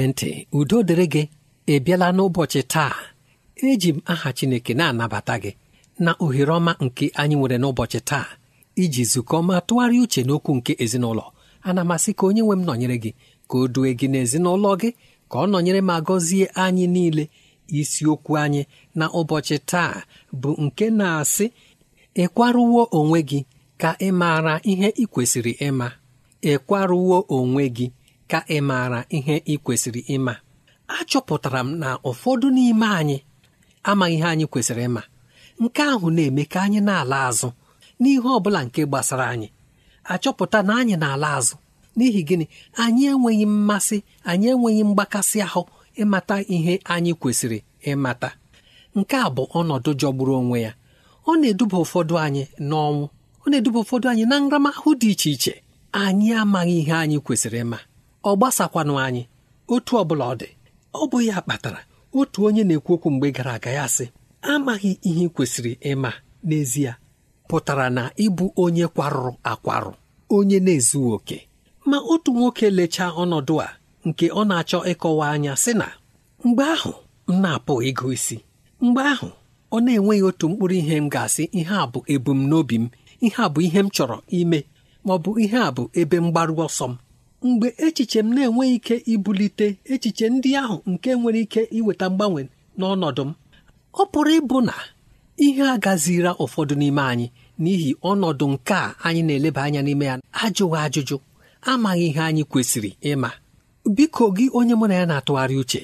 na ntị udo dịrị gị ị bịala n'ụbọchị taa eji m aha Chineke na-anabata gị na ohere ọma nke anyị nwere n'ụbọchị taa iji zukọ ma tụgharịa uche n'okwu nke ezinụlọ ana masị ka onye nwe m nọnyere gị ka o due gị n'ezinụlọ gị ka ọ nọnyere ma gọzie anyị niile isiokwu anyị na ụbọchị taa bụ nke na-asị ịkwarụwo onwe gị ka ị maara ihe ị kwesịrị ịma ịkwarụwo onwe gị ka ị maara ihe ị kwesịrị ịma achọpụtara m na ụfọdụ n'ime anyị amaghị ihe anyị kwesịrị ịma nke ahụ na-eme ka anyị na-ala azụ n'ihe ọ bụla nke gbasara anyị achọpụta na anyị na-ala azụ n'ihi gịnị anyị enweghị mmasị anyị enweghị mgbakasị ahụ ịmata ihe anyị kwesịrị ịmata nke a bụ ọnọdụ jọgburu onwe ya ọ na-eduba ụfọdụ anyị n'ọnwụ ọ na-eduba ụfọdụ anyị na nramahụ dị iche iche anyị amaghị ihe anyị kwesịrị ịma ọ gbasakwanụ anyị otu ọ bụla ọ dị ọ bụ ya kpatara otu onye na-ekwu okwu mgbe gara aga ya sị amaghị ihe kwesịrị ịma n'ezie pụtara na ịbụ onye kwarụrụ akwarụ onye na-ezughị oke ma otu nwoke lechaa ọnọdụ a nke ọ na-achọ ịkọwa anya sị na mgbe ahụ m na-apụ ịgụ isi mgbe ahụ ọ na-enweghị otu mkpụrụ ihe m ga-asị ihe a bụ ebumnobi m ihe a bụ ihe m chọrọ ime ma ọ bụ ihe a bụ ebe mgbaru ọsọ m mgbe echiche m na-enweghị ike ibulite echiche ndị ahụ nke nwere ike iweta mgbanwe n'ọnọdụ m ọ pụrụ ịbụ na ihe a ụfọdụ n'ime anyị n'ihi ọnọdụ nke a anyị na-eleba anya n'ime ya ajụghị ajụjụ amaghị ihe anyị kwesịrị ịma biko gị onye mụ na ya na-atụgharị uche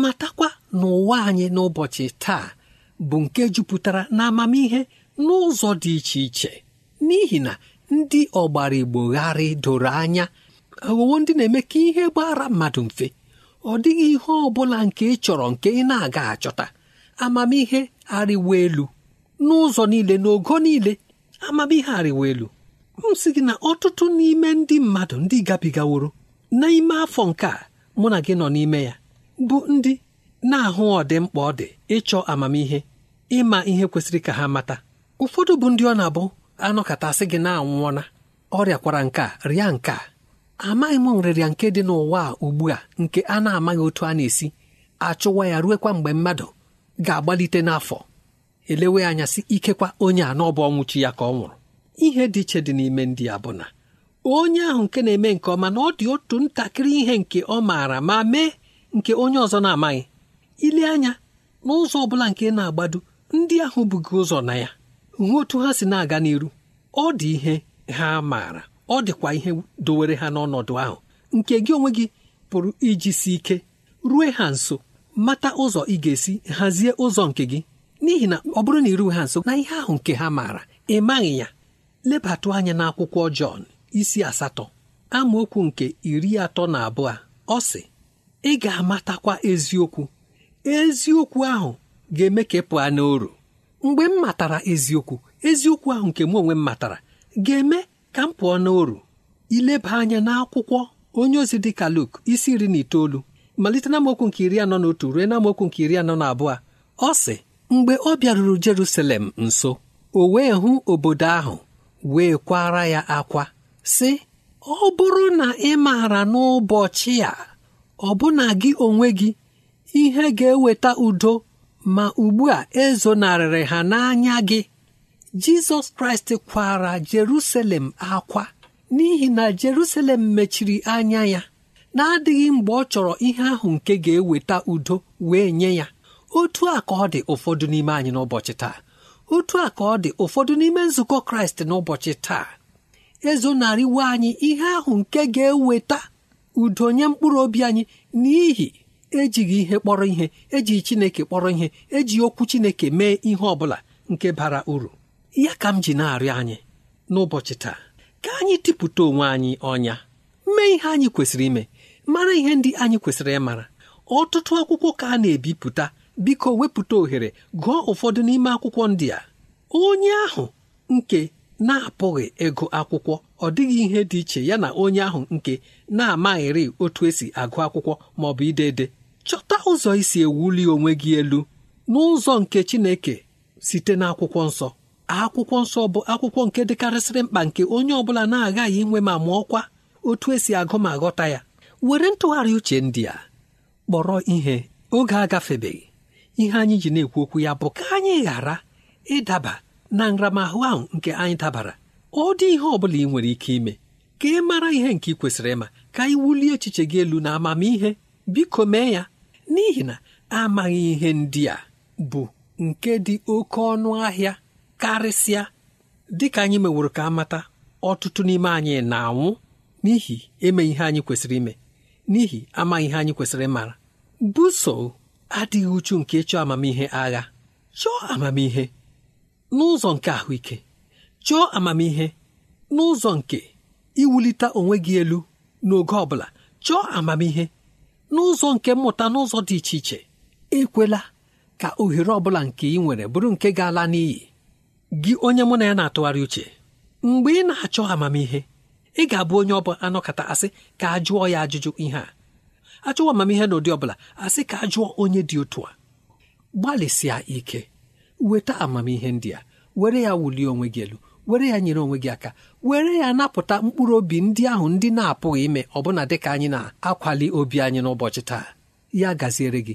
matakwa n'ụwa anyị n'ụbọchị taa bụ nke jupụtara na amamihe n'ụzọ dị iche iche n'ihi na ndị ọgbara igbo gharị doro anya aghọwo ndị na-eme ka ihe gbara mmadụ mfe ọ dịghị ihe ọ bụla nke ị chọrọ nke ị na-aga achọta amamihe arịwa elu n'ụzọ niile n'ogo niile amamihe arịwa elu m sị gị na ọtụtụ n'ime ndị mmadụ ndị gabigaworo n'ime afọ nke a mụ na gị nọ n'ime ya bụ ndị na-ahụ ọdịmkpa ọ dị ịchọ amamihe ịma ihe kwesịrị ka ha mata ụfọdụ bụ ndị ọ na-abụ katasị gị na-anwụọna ọrịakwara nke a rịa nke a amaghị m nrịrịa nke dị n'ụwa a ugbu a nke a na-amaghị otu a na-esi achụwa ya ruekwa mgbe mmadụ ga-agbalite n'afọ elewe anya si ikekwa onye a n'ọbụ ọnwụchi ya ka ọ nwụrụ ihe dị iche dị n'ime ndị a bụ na onye ahụ nke na-eme nke ọma na ọ dị otu ntakịrị ihe nke ọ maara ma mee nke onye ọzọ na-amaghị ile anya n'ụzọ ọ bụla nke na-agbado ndị ahụ bụgị ụzọ na ya hụ otu ha si na-aga n'iru ọ dị ihe ha maara ọ dịkwa ihe dowere ha n'ọnọdụ ahụ nke gị onwe gị pụrụ iji si ike rue ha nso mata ụzọ ị ga-esi hazie ụzọ nke gị n'ihi na ọ bụrụ na iruwe ha nso na ihe ahụ nke ha maara ị maghị ya lebatụ anya n'akwụkwọ Jọn isi asatọ amaokwu nke iri atọ na abụọ ọ sị ị ga-amatakwa eziokwu eziokwu ahụ ga-eme ka ị pụọ n'oru mgbe m matara eziokwu eziokwu ahụ nke m onwe m matara ga-eme ka m pụọ n'oru ileba anya n'akwụkwọ onye ozi dị ka Luk isi iri na itoolu malite na mokwu nke iri anọ na otu ruo na mokwu nke iri anọ na abụọ ọ sị mgbe ọ bịaruru Jerusalem nso o wee hụ obodo ahụ wee kwara ya akwa sị ọ bụrụ na ị maara n'ụbọchị a ọ bụna gị onwe gị ihe ga-eweta udo ma ugbu a ezonarịrị ha n'anya gị jizọs kraịst kwara jerusalem akwa n'ihi na jerusalem mechiri anya ya na-adịghị mgbe ọ chọrọ ihe ahụ nke ga-eweta udo wee nye ya otu a ka ọ dị ụfọdụ n'ime anyị n'ụbọchị taa otu a ka ọ dị ụfọdụ n'ime nzukọ kraịst n'ụbọchị taa ezonarịwo anyị ihe ahụ nke ga-eweta udo nye mkpụrụ obi anyị n'ihi ejighị ihe kpọrọ ihe ejighị chineke kpọrọ ihe eji okwu chineke mee ihe ọ bụla nke bara uru ya ka m ji na-arịọ anyị n'ụbọchị taa ka anyị tipụta onwe anyị ọnya mee ihe anyị kwesịrị ime mara ihe ndị anyị kwesịrị ịmara ọtụtụ akwụkwọ ka a na-ebipụta biko wepụta ohere gụọ ụfọdụ n'ime akwụkwọ ndị a onye ahụ nke na-apụghị ịgụ akwụkwọ ọ dịghị ihe dị iche ya na onye ahụ nke na-amaghịrị otu esi agụ akwụkwọ ma ọ bụ ide ede chọta ụzọ isi ewuli onwe gị elu n'ụzọ nke Chineke site n'akwụkwọ nsọ akwụkwọ nsọ bụ akwụkwọ nke dịkarịsịrị mkpa nke onye ọ bụla na-aghaghị inwe ma kwa otu esi agụ ma ghọta ya were ntụgharị uche ndị a kpọrọ ihe oge agafebeghị ihe anyị ji na-ekwu okwu ya bụ ka anyị ghara ịdaba na nramahụ ahụ nke anyị dabara ọ dị ihe ọ bụla ị nwere ike ime ka ị mara ihe nke ị kwesịrị ịma ka ị wulie echiche gị elu na amamihe biko mee ya n'ihi na amaghị ihe ndị a bụ nke dị oke ọnụ ahịa karịsịa dịka anyị meworo ka amata ọtụtụ n'ime anyị na-anwụ n'ihi eme ihe anyị kwesịrị ime n'ihi amaghị ihe anyị kwesịrị mara buso adịghị uchu nke chọọ amamihe agha chọọ amamihe n'ụzọ nke ahụike chọọ amamihe n'ụzọ nke iwulite onwe gị elu n'oge ọ bụla chọọ amamihe n'ụzọ nke mmụta n'ụzọ dị iche iche ekwela ka ohere ọ bụla nke ị nwere bụrụ nke ga-ala n'iyi gị onye mụ na ya na-atụgharị uche mgbe ị na-achọ amamihe ị ga-abụ onye ọbụla anọkọta asị ka a jụọ ya ajụjụ ihe a achọwa amamihe n'ụdị ọbụla asị ka a jụọ onye dị otu a gbalịsịa ike weta amamihe ndị a were ya wulie onwe gị elu were ya nyere onwe gị aka were ya napụta mkpụrụ obi ndị ahụ ndị na-apụghị ime ọbụna dịka anyị na-akwali obi anyị n'ụbọchị taa ya gaziere gị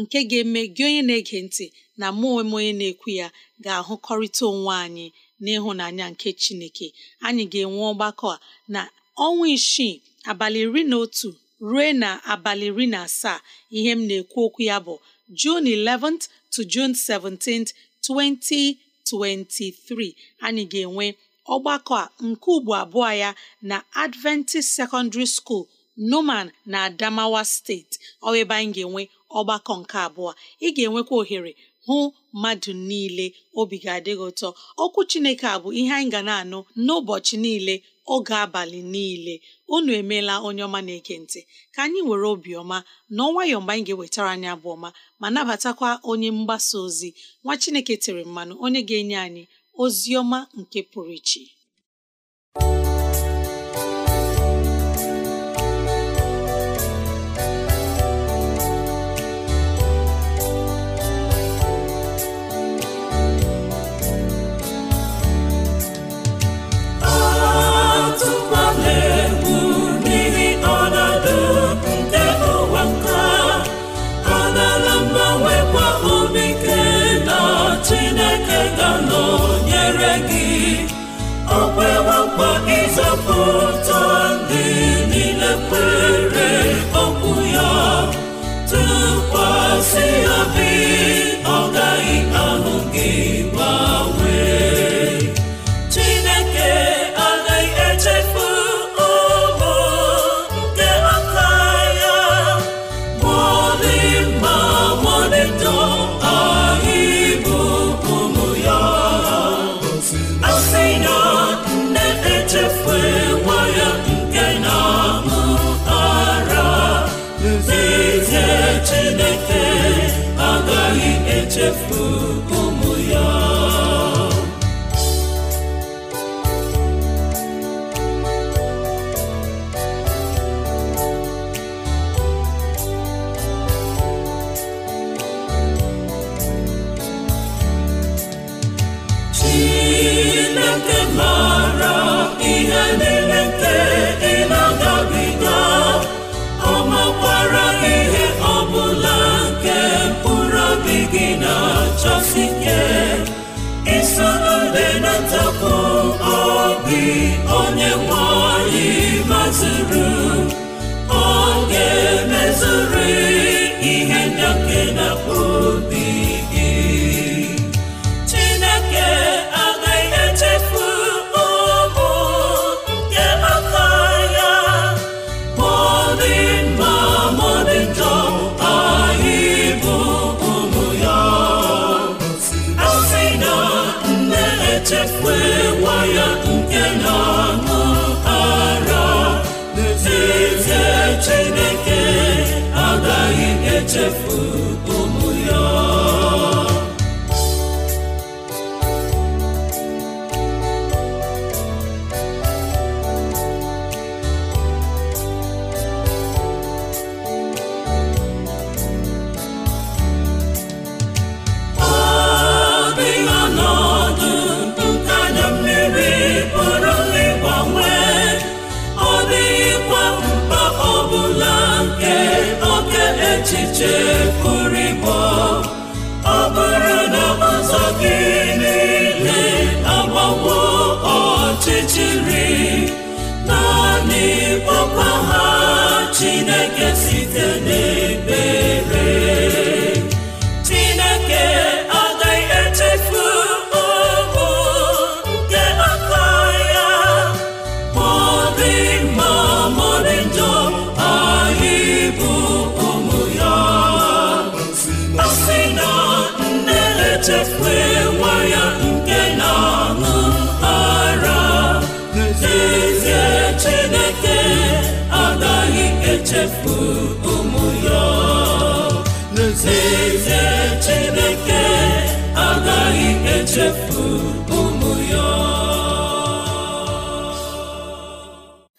nke ga-eme gị onye na-ege ntị na mụ onwe m onye na-ekwu ya ga-ahụkọrịta onwe anyị n'ịhụnanya nke Chineke anyị ga-enwe ọgbakọ a na ọnwa isii abalị iri na otu ruo na abalị iri na asaa ihe m na-ekwu okwu ya bụ June 11th to June 17th 2023 anyị ga-enwe ọgbakọ a nke ugbo abụọ ya na Adventist Secondary School. noman na adamawa steeti ọ ebe anyị ga-enwe ọgbakọ nke abụọ ị ga-enwekwa ohere hụ mmadụ niile obi ga adịghị ụtọ okwu chineke a bụ ihe anyị ga na-anụ n'ụbọchị niile oge abalị niile unu emeela onye ọma na ekentị ntị ka anyị were obiọma na ọnwayọọ mgbe anyị ga-ewetara anyị abụ ọma ma nabatakwa onye mgbasa ozi nwa chineke tere mmanụ onye ga-enye anyị ozi ọma nke pụrụ iche akpọ ịzọpụta Chineke agaghị echefu gị onye nwanyị anyị maziri chefuru ọ bụrụ na ụzọ gị niile agbawo ọchịchịrị naanị kpọkwa ha Chineke site n'ebere efu ụmụ ya Chineke agaghị echefu ụmụ ya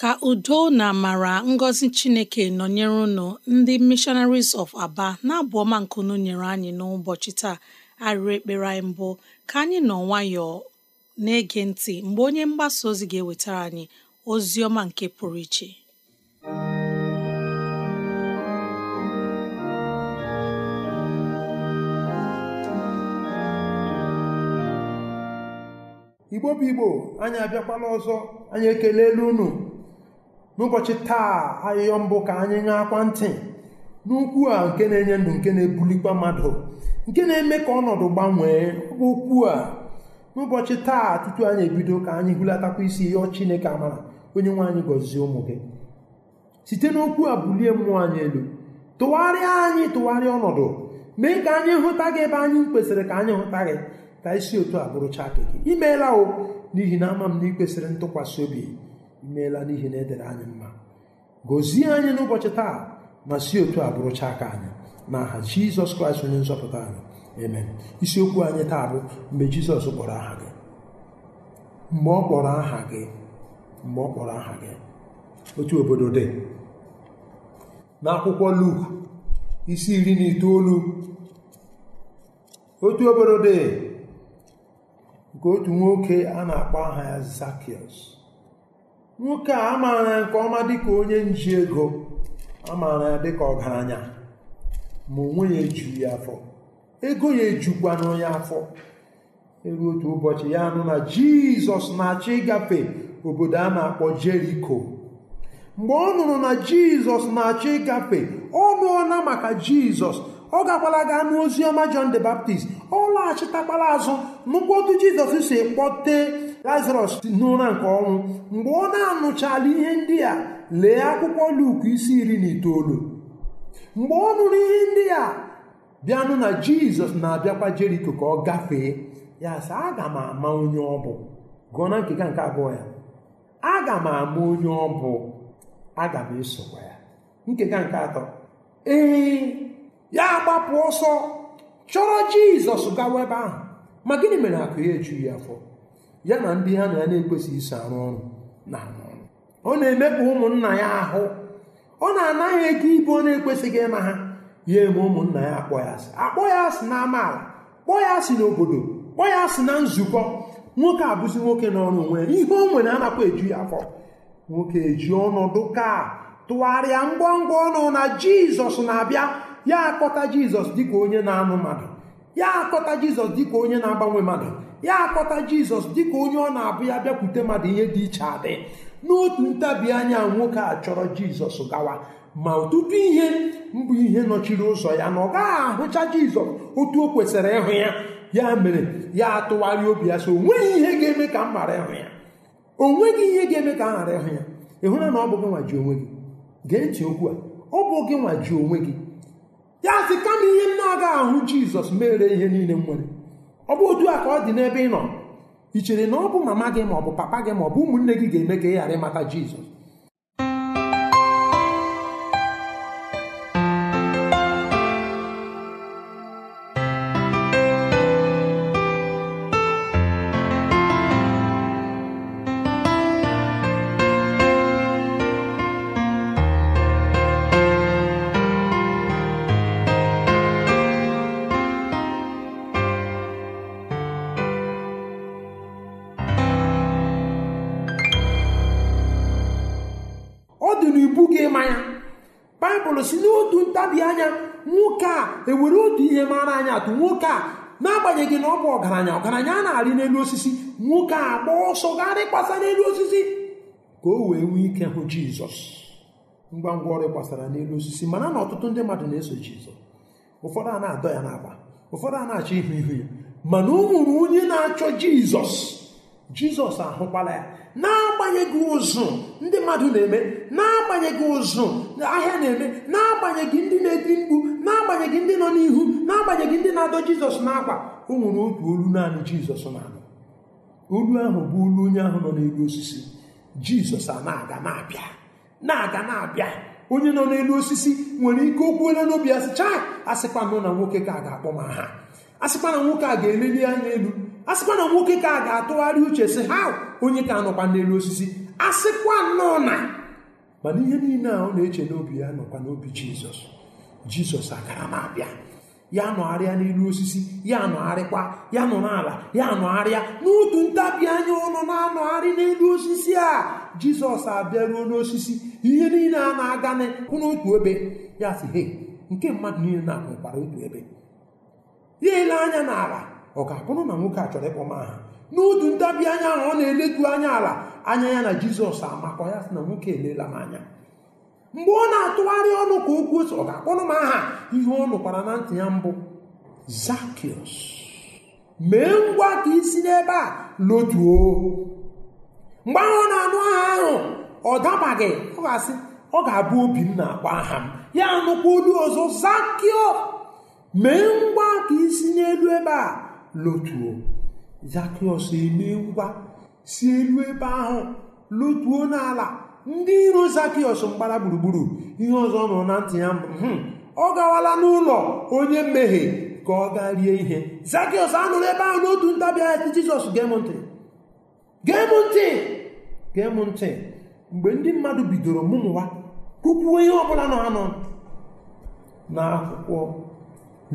ka udo na amara ngọzi Chineke nọnyere unu ndị Missionaries of Aba na-abụ ọma nkunu nyere anyị n'ụbọchị taa arịrị ekpere anyị mbụ ka anyị nọ nwayọọ na-ege ntị mgbe onye mgbasa ozi ga-ewetara anyị ozi ọma nke pụrụ iche igbo bụ igbo anyị abịakwala ọzọ anyị elu unu n'ụbọchị taa ahịhịọ mbụ ka anyị akwa ntị n'ukwu a nke na-enye ndụ nke na-ebulikwa mmadụ nke na-eme ka ọnọdụ gbanwee bụ okwu a n'ụbọchị taa tutu anyị ebido ka anyị hulatakwa isi ịyọ chineke amara onye nwe anyị gọzie ụmụ gị site n'okwu a bulie mmụọ anyị elu tụgharịa anyị tụgharịa ọnọdụ mee ka anyị hụta gị ebe anyị kwesịrị ka anyị hụta gị ka isi otu a bụrụcha gị imeela o n'ihi na ama m na ị kwesịrị ntụkwasị obi imeela n'ihi na edere anyị mma gọzie anyị n'ụbọchị taa ma si otu a bụrụcha aka anyị na aha jizọs kraịst onye nzọpụta anyị amen isiokwu anyị taa bụ mgbe jizọs kpọrọ aha gị mgbe ọ kpọrọ aha gị mgbe ọ kpọrọ aha gị otu obodo dị n'akwụkwọ luk isi iri na itoolu otu obodo dị nke otu nwoke a na-akpọ aha ya zakius nwoke a amaara ya nke ọma dịka onye nji ego amaara ya dịka ọgaranya ma onwe ya ejuru ya afọ ego ya ejukwana ya afọ eru otu ụbọchị ya nụ na Jizọs na achị ịgafe obodo a na-akpọ Jeriko mgbe ọ nụrụ na Jizọs na achị ịgafe ọ nụọla maka Jizọs ọ gakwala gaa n'ozi ọma the Baptist ọ laghachitakwara azụ nụkwa otu jizọs si kpọte lazarọs n'ụra nke ọnwụ mgbe ọ na-anụchala ihe ndị a lee akwụkwọ luk isi iri na itoolu mgbe ọ nụrụ ihe ndị a bịanụ na jizọs na-abịakwa jeriko ka ọ gafee ya sị aga m ama onye ọ bụ gụọ na nkega nke abụọ ya aga m ama onye ọ bụ aga m esokwa ya nkega nke atọ ee ya gbapụ ọsọ chọrọ jizọs gawa ebe ahụ ma gịnị mere akụ ya ejughị ya afọ ya na ndị ha na ya na-ekwesịghị iso arụ ọrụ na ọrụ ọ na-emekpa ụmụnna ya ahụ ọ na-anaghị ego ibu ọ na-ekwesịghị ịma ha ya eme ụmụnna ya akpọ ya asị akpọ ya asị na amaala kpọọ ya asị n'obodo kpọọ ya asị na nzukọ nwoke abụzi nwoke n'ọrụ onwe ya ihe o nwere anakwa eju ya afọ nwoke eji ọnọdụ ka tụgharịa ngwa ngwa ọnụ na jizọs na-abịa ya akpọta jizọs dịka onye na-anụ mmadụ ya akpọta jizọs dịka onye na-agbanwe mmadụ ya akpọta jizọs dịka onye ọ na-abụ ya bịakwute mmadụ ihe dị iche adị n'otu ntabi anya nwoke a chọrọ jizọs gawa ma ọtụtụ ihe mbụ ihe nọchiri ụzọ ya na ọ gaghị ahụcha jizọs otu o kwesịrị ịhụ ya ya mere ya atụgharị obi ya so o nweghị ihe ga-eme ka m ghara ịhụ ya o nweghị ihe ga-eme ka m ghara ịhụ ya ị na ọ bụ gị nwa ji onwe gị gee ntị okwu a ọ bụ gị nwa ji onwe gị ya sị kama ihe m na-agaghị ahụ jizọs mere ihe niile m nwere ọ bụ otu a ka ọ dị n'ebe ị nọ ị chere na ọ bụ mama gị ma ọ bụ papa gị ma ọ bụ ụmụnne gị ga-eme ka ị ghara ịmata jizọs anya nwoke a ewere otu ihe mara anya atụ nwoke a n'agbanyeghị na ọ bụ ọgaranya ọgaranya a na-arị n'elu osisi nwoke a gba ọsọ garị kpasa n'elu osisi ka o wee nwee ike hụ jizọs ngwa ngwa ọrụ gbasara n'elu osisi mana na ọtụtụ ndị mmadụ na-eso jizọs ụfọdụ a na-adọ ya n'agba ụfọdụ a na-achọ ihu ihu ya mana o onye na-achọ jizọs jizọs ahụkwala ya na-agbanyeghị ụzụ ndị mmadụ na-eme na-agbanyeghị ụzụ ahịa na-eme na-agbanyeghị ndị na edi mkpu na-agbanyeghị ndị nọ n'ihu na-agbanyeghị ndị na-adọ jizọs n'akwa o nwere otu olu naanị jizọs na-anụ olu ahụ bụ olu onye ahụ nọ n'elu osisi jizọs a na-aga na-abịa na-aga na-abịa onye nọ n'elu osisi nwere ike okwuola n'obi asịcha asịkwa nọ na nwoke ka a ga-akpọ m aha asịkwa na nwoke a ga-eleli anya elu a sịkwa na nwoke ka a ga-atụgharị uche sị ha onye ka anọkwa n'elu osisi a sịkwa nnọọ na mana ihe niile a ọ na-eche n'obi ya nọkwa n'obi jizọs jizọs agara m abịa ya nọgharịa n'elu osisi ya nọgharịkwa ya nọ n'ala ya nọgharịa n'otu ntabi anya ọnụ na-anọgharị n'elu osisi a jizọs abịaruo n'osisi ihe niile a na-aga n'otu ebe ya sị he nke mmadụ niile na-akụkwara otu ebe ya ele anya n'ala ọ ga-abụrụ na nwoke a chọrọ ịkpọ m aha n'udu ntabi anya ahụ ọ na-eletu anya ala anya ya na jizọs amakọ ya sị na nwoke elela m anya mgbe ọ na-atụgharị ọnụ ka okwu ose ọ ga-akpọrọ m aha ihe ọ nụkwara na ntị ya mbụ zakios mee ngwa ka isi n'ebe a lotuo mgbe ahụ ọ na-anụ aha ahụ ọ dabaghị ọ ga-asị ọ ga-abụ obi m na-akpọ aha m ya nụkwa olu ọzọ zakio mee ngwa ka isi n'elu ebe a lotuo zakịọs emee ngwa si elu ebe ahụ lotuo n'ala ndị iro zakịọs mgbara gburugburu ihe ọzọ nọ na ntị ya hmm. ọ gawala n'ụlọ onye mmehie ka ọ gaa rie ihe zakịọs anụrụ ebe ahụ n'otu ntabi anya jizọs gee m ntị mgbe ndị mmadụ bidoro mụmụwa kwukwuo ihe ọbụla nọ anọ n'akwụkwọ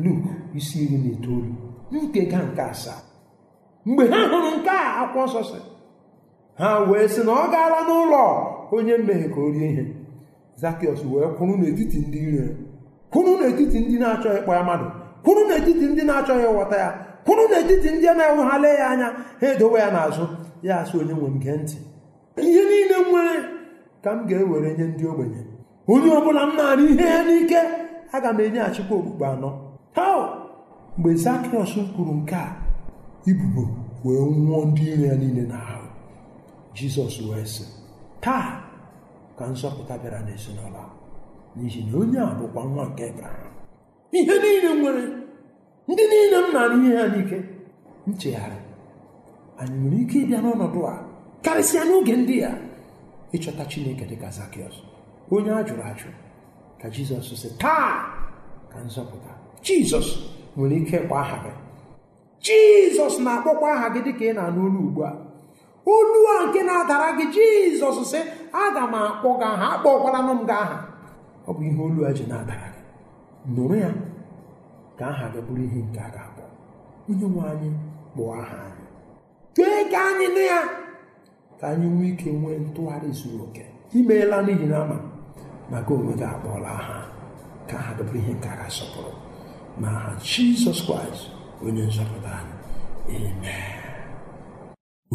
luk isi iri na itoolu ga nke asaa mgbe ha hụrụ nke a akwụkwọ nsọ si ha wee sị na ọ gaala n'ụlọ onye mmehie ka o rie ihe zakịọs wee kwụrụ n'etiti ndị ire kwụrụ n'etiti ndị na-achọghị ịkpọ ya mmadụ kwụrụ n'etiti ndị na-achọghị ịghọta ya kwụrụ n'etiti ndị na-enwe ya anya ha edowe ya n'azụ ya sị onye nwe m gee ntị ihe niile m nwere ka m ga-ewere nye ndị ogbenye onye ọbụla m na-arụ ihe ya n'ike aga m enyeghachikwa okpukpe anọ mgbe zakriọs kwuru nke a ibubo wee nwụọ ndị iro ya niile n'ahụ jizọs wee sị taa ka nzọpụta bịara n'ezinụlọ n'ihi na onye a bụkwa nwa nke ebraham ihe niile nwere ndị niile m na-arụ ihe ha n'ike nchegharị anyị nwere ike ịbịa n'ọnọdụ a karịsịa n'oge ndị a ịchọta chineke dịka zakịọs onye a jụrụ ajụ ka jizọs sị taa ka nzọpụta jizọs nwere ike ịkpọ aha gị jizọs na-akpọkwa aha gị dịka ị na-anụ olu ugbu a olu a nke na-adara gị jizọs sị aga m akpọ gị aha akpọkwaranụ m gị aha ọ bụ ihe olu a ji na-adara gị nụrụ ya ka aha gị bụrụ ihe nke a ga-akpọ onye nwe anyị kpụọ aha anyị kee ka anyị nụ ya ka anyị nwee ike nwee ntụgharị zuru oke imeela n'ihi na ama maka onwe gị akpọọla aha ka aha gị bụrụ ihe nke a ga-asọpụrụ n'aha jizọs kraịst onye nzọpụta anyị amen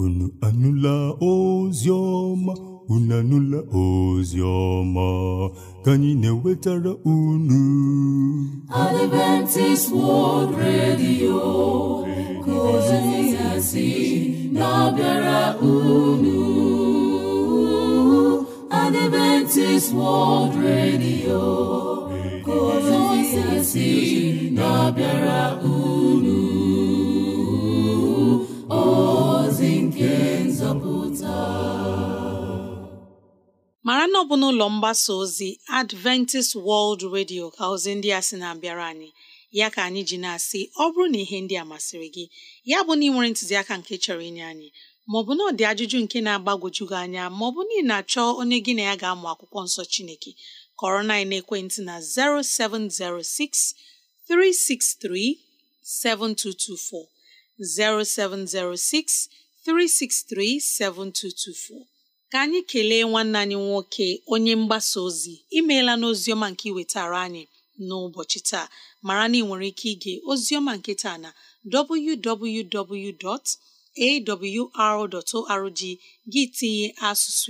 unu anụla ozi ọma unu anụla ozi ọma ka anyị na-ewetara unu Adventist World Radio ka ozi na-abịara unu Adventist World Radio ezi na-abịara unu ozi nke nzọpụta mara na ọ bụ n'ụlọ mgbasa ozi Adventist World Radio ka ozi ndị a sị na-abịara anyị ya ka anyị ji na-asị ọ bụrụ na ihe ndị a masịrị gị ya bụ na ị nwere ntụziaka nke chọrọ inye anyị maọbụ na ọ dị ajụjụ nke na-agbagwoju anya maọbụ na ị na-achọ onye gị na ya ga-amụ akwụkwọ nsọ Chineke kọrọ na ekwentị na 0706 363 7224 0706 363 7224 ka anyị kelee nwanne anyị nwoke onye mgbasa ozi imela n'ozioma nke iwe iwetara anyị n'ụbọchị taa mara na ị nwere ike ige ozioma nke taa na www.awr.org gị tinye asụsụ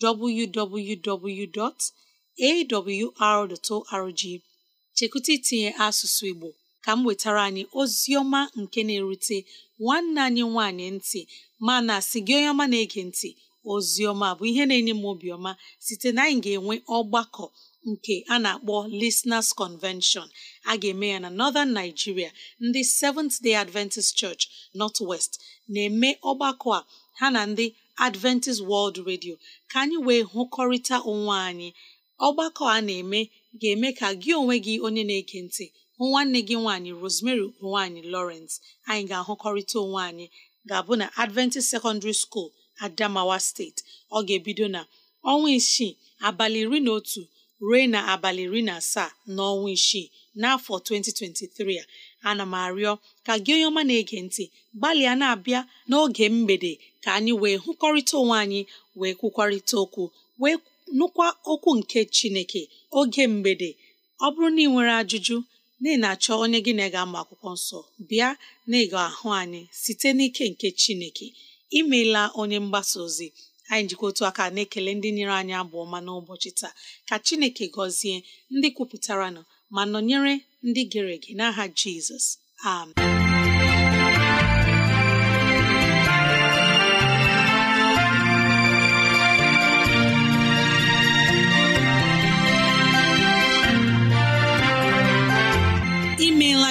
Igbo www. awr.org chekwụta itinye asụsụ Igbo ka m wetara anyị ozi nke na-erute nwanne anyị nwanyị ntị mana si gị onye ọma na-ege ntị ozi bụ ihe na-enye m obiọma site na anyị ga-enwe ọgbakọ nke a na-akpọ Listeners Convention a ga-eme ya na Northern Nigeria ndị Seventh Day Adventist Church North West na-eme ọgbakọ a ha na ndị Adventist World Radio ka anyị wee hụkọrịta onwe anyị ọgbakọ a na-eme ga-eme ka gị onwe gị onye na-ege ntị hụ nwanne gị nwaanyị Rosemary nwaanyị Lawrence anyị ga-ahụkọrịta onwe anyị ga-abụ na Adventist Secondary School Adamawa Steeti ọ ga-ebido na ọnwa isii abalị iri na otu ruo na abalị iri na asaa n'ọnwa isii n'afọ 2023 a ana m arịọ ka gị onye ọma na-ege ntị gbalịa na-abịa n'oge mgbede ka anyị wee hụkọrịta onwe anyị wee kwukwarịta okwu wee nụkwa okwu nke chineke oge mgbede ọ bụrụ na ị nwere ajụjụ na ị na-achọ onye gị na ga-ama akwụkwọ nsọ bịa na ịga ahụ anyị site n'ike nke chineke imeela onye mgbasa ozi anyị njikọ otu aka na-ekele ndị nyere anyị abụ ọma n'ụbọchị taa ka chineke gọzie ndị kwupụtara ma nọnyere ndị gere ege n'aha jizọs amen